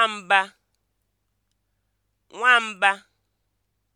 nwamba nwamba